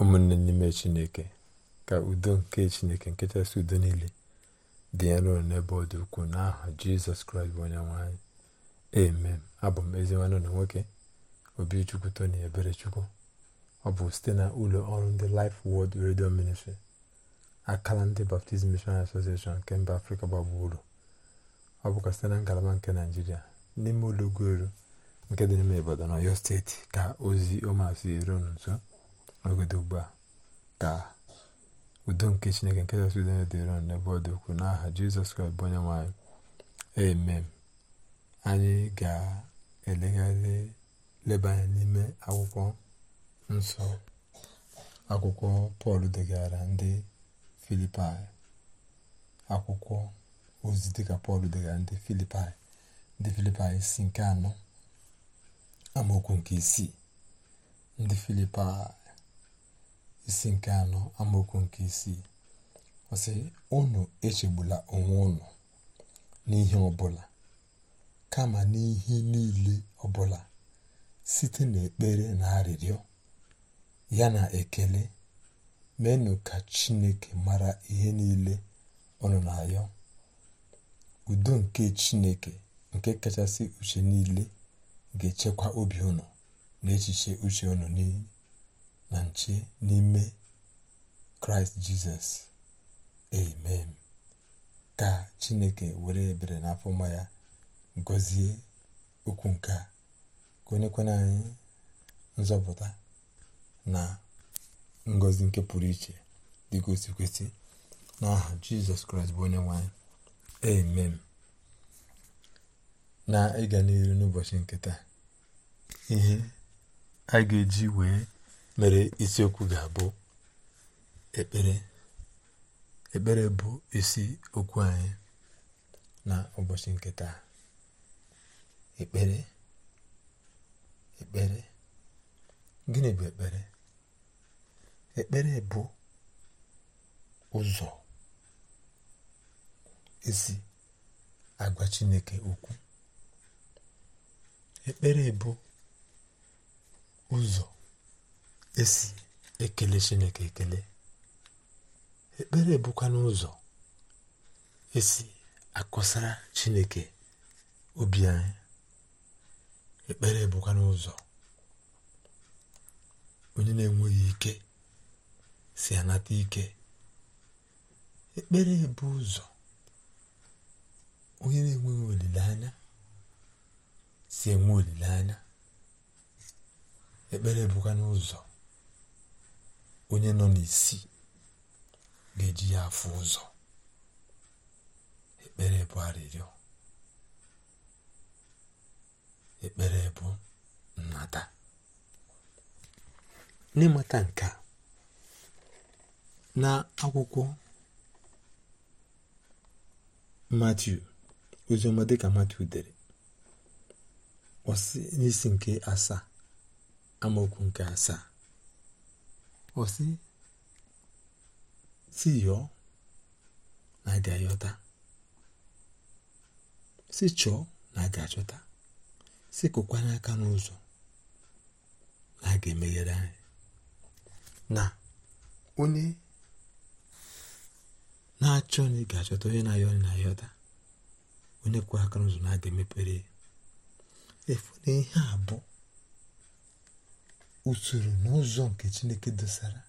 ụmụnne n'ime chineke ka udo nke chineke nke chasị udo niile dị ya n'ụlọ n'ebe ọ dị ukwuu n'aha jizọs kraịst bụ onye nwanyị amen abụ m ezi nwanne ụlọ nwoke obi obichukwu tony eberechukwu ọ bụ site na ụlọ ọrụ ndị Life Word Radio Ministry akala ndị Baptist Missionary Association nke mba afrịka gbagburu ọ bụkwa site na ngalaba nke naijiria n'ime ụlọ ụlọugwuelu nke dị n'ime na Ọyọ steeti ka ozi ọmasị eru nso ogodo ugbu a ka udo nke chineke nke kachasị dịrị niile n'ebe ọ dị ukwuu n'aha jizọs kraịst bụ onye nwe anyị amen anyị ga-elegharị leba n'ime akwụkwọ nsọ akwụkwọ pọl degara ndị filipaị akwụkwọ ozi ka pọl degara ndị filipaị ndị filipaị isi nke anọ amaokwu nke isii ndị filipai isi nke anọ amaokwu nke isii ọsị unu echegbula onwe unu n'ihe ọbụla kama n'ihe niile ọbụla site n'ekpere na arịrịọ ya na ekele menụ ka chineke mara ihe niile unu na-ayọ udo nke chineke nke kachasị uche niile ga-echekwa obi ụnụ na echiche uche ụnụ niile na nche n'ime kraịst jizọs amen ka chineke were ebere na afọma ya gọzie okwu nke a ka anyị nzọpụta na ngozi nke pụrụ iche dịgosi kwesị n'aha jizọs kraịst bụ onye nwanyị amen na ịga n'iru n'ụbọchị nke taa ihe a ga-eji wee mere isiokwu ga-abụ ekpere ekpere bụ isi okwu anyị na ụbọchị nke taa ekpere ekpere gịnị bụ ekpere ekpere bụ ụzọ esi agwa chineke okwu ekpere bụ ụzọ esi ekele chineke ekele ekpere bụkwa n'ụzọ esi akọsara chineke obi anyị ekpere bụkwa n'ụzọ onye na-enweghị ike si anata ike ekpere bụ ụzọ onye na-enweghị olileanya si enwe olileanya ekpere bụkwa n'ụzọ onye nọ n'isi ga-eji ya afụ ụzọ ekpere bụ arịrịọ ekpere bụ nnata n'ịmata nke a na akwụkwọ Matiu ka dịka Matiu dere ọsị n'isi nke asaa amaokwu nke asaa Wasị si yọọ na a ayọta si chọọ na aga achọta si kụkwanye aka n'ụzọ na a ga-emeghere anyị na onye na-achọ na ị ga-achọta onye na-ayọ na-ayọta onye kwụrụ aka n'ụzọ na a ga-emepere efu na ihe abụọ usoro na ụzọ nke chineke dosara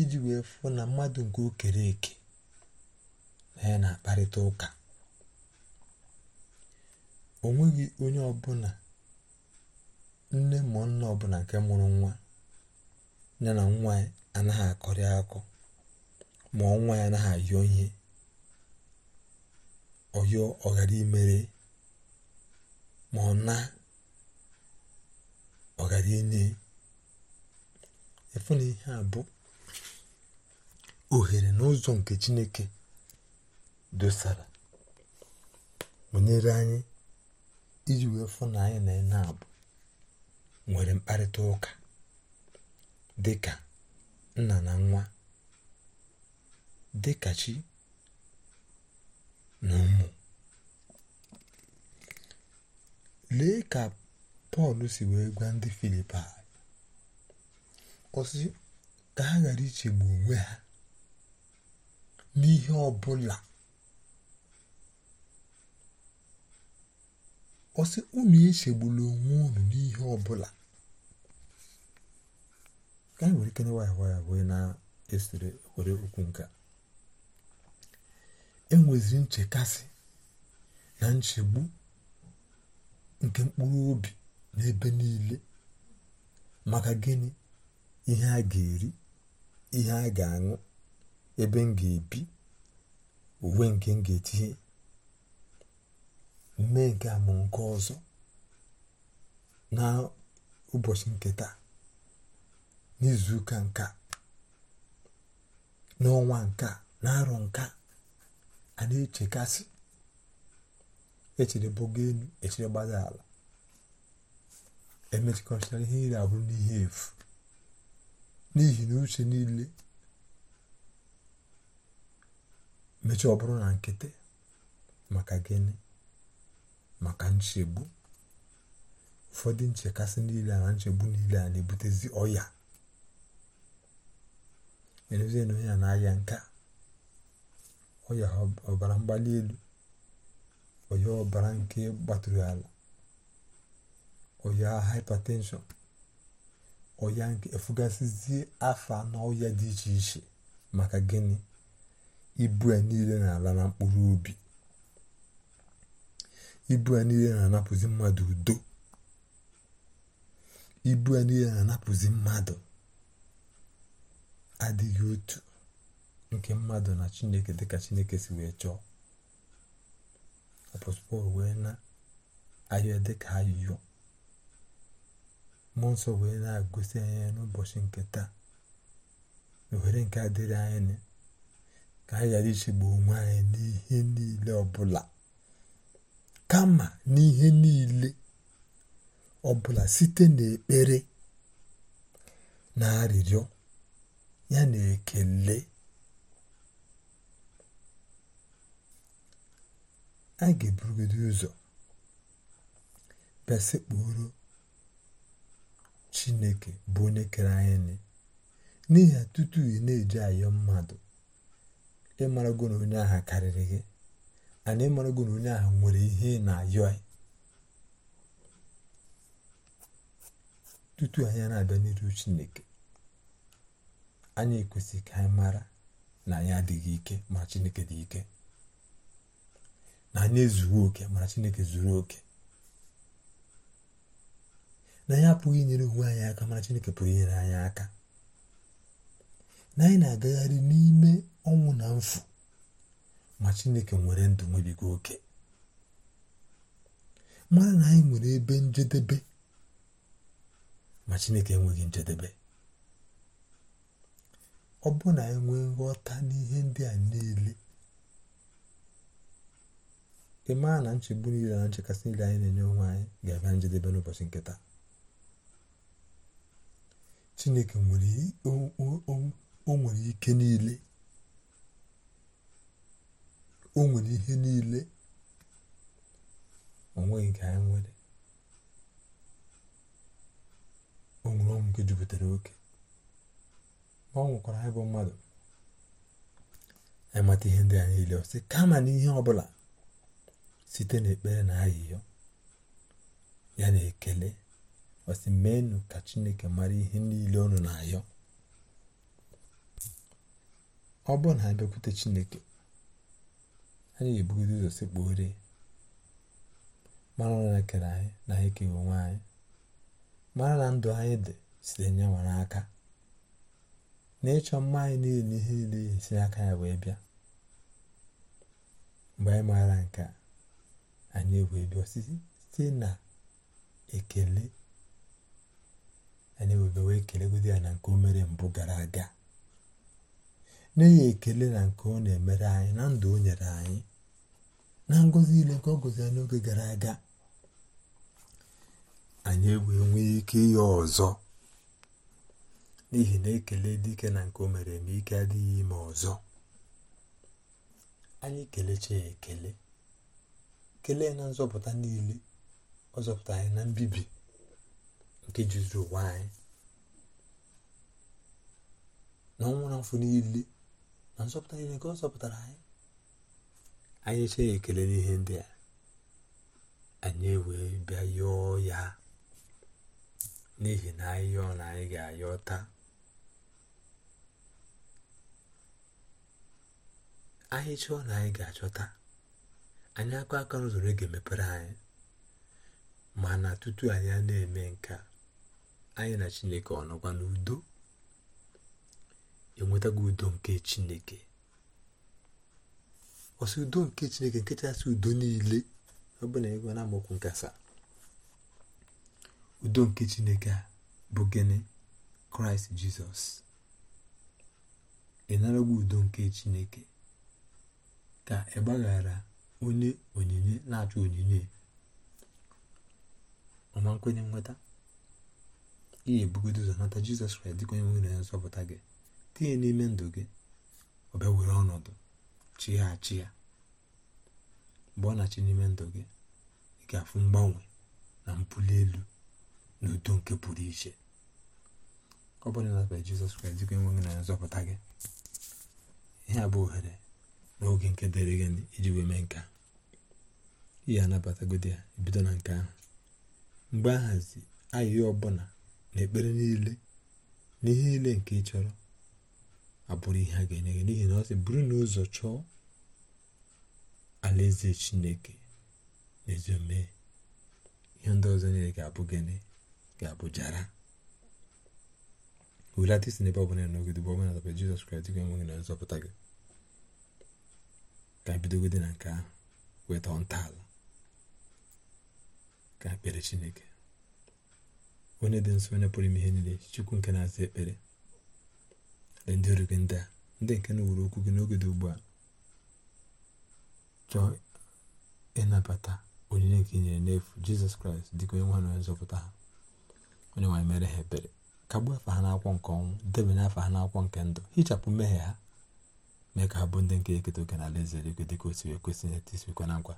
iji wee fụ na mmadụ nke o eke na ya na-akparịta ụka onweghị onye ọbụla nne ma nna ọbụla nke mụrụ nwa ya na nwa ya anaghị akọrị akọ ma ọnwa ya anaghị ayọ ihe ọyọ ọghara imere ma ọ na ọghara inye efu na ihe a bụ ohere na nke chineke dosara banyere anyị iji wee fụ na anyị na ene abụ nwere mkparịta ụka dị nna na nwa dị chi na ụmụ lee ka pọl si wee gwa ndị filipai ọsị ka ha ghara ichegbu onwe ha n'ihe ọbụla ọsị unu echegbula onwe unu n'ihe ọbụla ka anyị were ikene ya bụ wee na-esere were okwu nke enweziri nchekasị na nchegbu nke mkpụrụ obi n'ebe niile maka gịnị ihe a ga-eri ihe a ga-aṅụ ebe m ga-ebi uwe nke m ga-etinye mme nke a ma nke ọzọ na ụbọchị nke taa n'izuụka nka n'ọnwa nka na-arọ nka a na-echekasị echerebogo elu echere gbada ala emechikọchara ihe iri abụrụ n'ihe efu n'ihi na uche niile mechie ọ bụrụ na nkịtị maka gịnị maka nchegbu ụfọdụ nchekasị niile na nchegbu niile a na-ebutezi ọya erezie na onye na-aya nke a ọya ọbara mgbali elu ọya ọbara nke gbatụrụ ala ọya hypertension ọya nke efugasịzie afa na ọya dị iche iche maka gịnị ibu ya niile na-ala na mkpụrụ obi ibu a niile na-anapụzi mmadụ udo ibu ya niile na-anapụzi mmadụ adịghị otu nke mmadụ na chineke dịka chineke si wee chọọ apọstọl wee na ayọ dịka ayọ mmụọ nsọ wee na agụsi anya n'ụbọchị nke taa ohere nke adịrị anyị ka anyị ghara ichegbu onwe anyị n'ihe niile ọbụla kama n'ihe niile ọbụla site n'ekpere na arịrịọ ya na ekele a ga-eburugide ụzọ bịa Chineke bụ onye kere anyị n'ihi ya tutu ị na-eji ayọ mmadụ ịmarago na onye agha karịrị gị ana ịmarago na onye agha nwere ihe na-ayọ tutu anya na-abịa n'iru Chineke anya ekwesịghị ka anyị mara na anyị adịghị ike ma Chineke dị ike na oke mara Chineke zuru oke na ya apụghị inyere onwe anyị aka mana chineke pụrụ inyere anyị aka na anyị na-agagharị n'ime ọnwụ na mfụ ma chineke nwere ndụ nwebigo oke mara na anyị nwere ebe njedebe ma chineke enweghị njedebe ọ bụrụ na anyị nwee nghọta n'ihe ndị a niile ị maa na nchegbu niile na nchekasị niile anyị na-enye onwe anyị ga-abịa njedebe n'ụbọchị nkịta. chineke o nwere ike niile o nwere ihe niile onweghị nke anyị nwere o nwere ọnwụ nke jupụtara oke ma ọ nwụkwara anyị bụ mmadụ anyị ihe ndị a niile ọsị kama na ihe ọbụla site n'ekpere na ahịhịa ya na ekele masị meenụ ka chineke mara ihe niile ọnụ na-ayọ ọ bụrụ na anyị bịakwute chineke anyị ga-ebugodo ụzọ sekpughere mara na kere anyị na anyị keghị onwe anyị mara na ndụ anyị dị site nyanwa aka na ịchọ mma anyị niile ihe niile si aka ya wee bịa mgbe anyị maara nke anyị wee bịa site na ekele anyị webe wee kelegodi ya na nke o mere mbụ gara aga n'ihi ekele na nke ọ na-emere anyị na ndụ o nyere anyị na ngozi ile nke ọ gọziri n'oge gara aga anyị ewee nwee ike ihe ọzọ n'ihi na ekele dike na nke o mere eme ike adịghị ime ọzọ anyị kelechi ya ekele kelee na nzọpụta niile ọ zọpụta anyị na mbibi nke jizuru ụwa anyị na ọnwụ na afọ niile na nzọpụta niile nke ọ zọpụtara anyị anyị eche ya ekele n'ihe ndị a anyị ewee bịa yọọ ya n'ihi na anyị yọọ na anyị ga-ayọ taa anyị chọọ na anyị ga-achọta anyị aka aka n'ụzọ ga-emepere anyị mana tutu anyị na-eme nke a anyị na chineke ọ nọkwa n'udo enwetago udo nke chineke ọsị udo nke chineke nke chasị udo niile ọ bụ na ịgụ na nkasa udo nke chineke a bụ gịnị kraịst jizọs ịnarago udo nke chineke ka ị gbaghara onye onyinye na-achọ onyinye ọma nkwenye nweta ihe ebugod ụzọ nata jizọs kraịst dịka onye nwere ya nzọpụta gị tinye n'ime ndụ gị ọ were ọnọdụ chighachi ya mgbe ọ na-achị n'ime ndụ gị ị ga-afụ mgbanwe na mbuli elu na udo nke pụrụ iche ọ bụrụ na nabara jizọs kraịst dịka onye nwere ya nzọpụta gị ihe a bụ ohere n'oge nke dịrị gị iji wee mee nke a ihe anabatagodo ya ebido na nke ahụ mgbe ahazi ahịhịa ọbụla n'ekpere niile n'ihe niile nke ị chọrọ abụrụ ihe a ga-enye gị n'ihi na ọ sị bụrụ na ụzọ chọọ alaeze chineke na ezi ihe ndị ọzọ niile ga-abụ gịnị ga-abụ jara hulata isi n'ebe ọbụla nọgide bụ ọbụla dabere jizọs kraịst gị enweghị na nzọpụta gị ka bidogode na nke ahụ weta ntọala ka ekpere chineke onye dị nsọ onye pụrụ ime ihe niile chukwu nke na-aza ekpere na ndị ọrụ gị ndị a ndị nke na wuru okwu gị n'oge dị ugbu a chọọ ịnabata onyinye nke inyere n'efu jizọs kraịst dịka onye nwa na onye nzọpụta ha onye nwanyị mere ha ebere gbuo afa ha n'akwụkwọ nke ọnwụ debanye afa ha n'akwụkwọ nke ndụ hichapụ mmehie ha mee ka ha bụ ndị nke eketa oke na alaeze eluigwe dịka o si wee kwesị na etisikwa na nkwa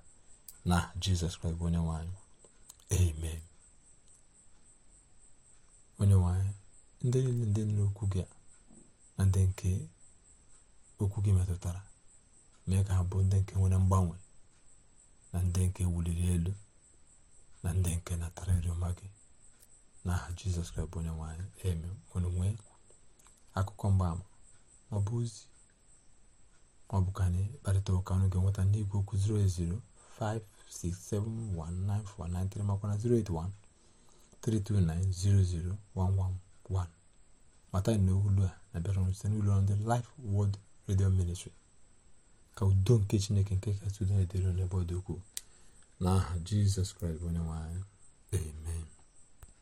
na jizọs kraịst bụ onye nwaanyị amen onye nwanyị ndị niile ndị nna okwu gị na ndị nke okwu gị metụtara mee ka ha bụ ndị nke nwere mgbanwe na ndị nke wuliri elu na ndị nke natara ịrịọma gị n'aha jizọs kraịst bụ onye nwanyị eme nwere nwee akụkọ mgbaama ma ọ bụ ozi ka anyị kparịta ụka ọnụ ga-enweta n'igwe okwu 08056719493 makwa na 081 32900111 00111 mata na olu a na-abịara site n'ụlọ ndị Life Word Radio Ministry ka udo nke chineke nke kasị udo na-edere n'ebe ọ dị ukwuu n'aha jizọs kraịst bụ onye nwe amen